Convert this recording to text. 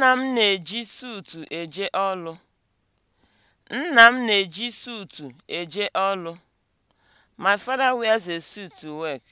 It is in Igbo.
Nna m na-eji suutu eje ọlụ. Nna m na-eji suutu eje ọrụ. My father wears a suit to work.